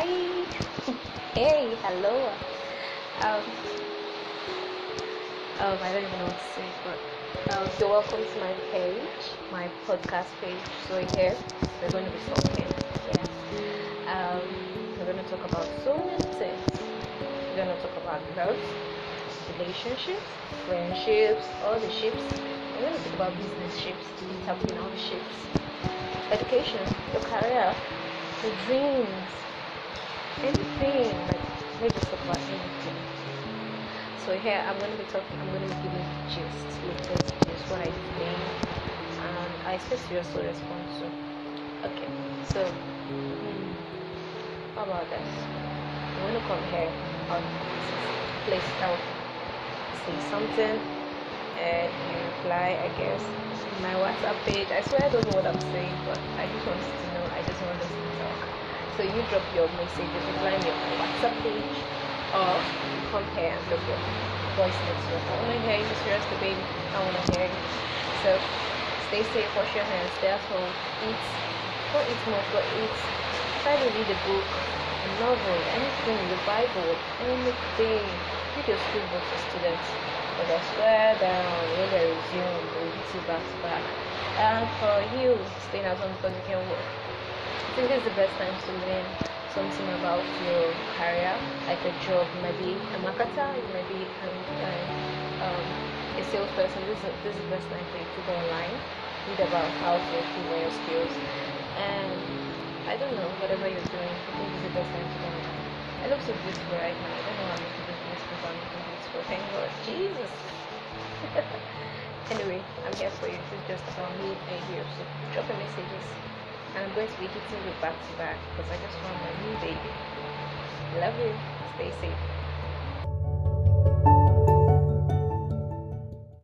Hi. hey, hello. Um, um, I don't even know what to say, but um, so welcome to my page, my podcast page. So here we're going to be talking. Yeah. Um, we're going to talk about so many things. We're going to talk about love, relationships, friendships, all the ships. We're going to talk about business ships, interpreting all the ships, education, your career, the dreams, anything. Like they just talk about anything. So here I'm gonna be talking. I'm gonna be giving gist, latest gist, what I think, and I expect you also respond to. Okay, so hmm, how about this? I'm gonna come here on place now. Say something and you reply, I guess. My WhatsApp page. I swear I don't know what I'm saying, but I just want to know. I just want us to talk. So you drop your messages, find your WhatsApp page, or come here and drop your voice notes. I want to hear you serious the baby. I want to hear you. So stay safe, wash your hands, stay at home, eat. go eat more for eat. Try to read a book, a novel, anything, the Bible, anything. Read your school book for students. But I swear down, when they resume, we'll be back to back. And for you, staying at home because you can work. think it's the best time to learn something about your career, like a job. maybe a marketer, maybe might uh, um, a salesperson. This is, this is the best time for you to go online, read about how to improve your skills, and I don't know, whatever you're doing, I think it's the best time to go online. I look so beautiful right now. I don't know how I'm looking beautiful, but I'm looking beautiful. Thank God, Jesus. anyway, I'm here for you. This is just about me and you. So drop a messages. and I'm going to be hitting you back to back because I just found my new baby. Love you. Stay safe.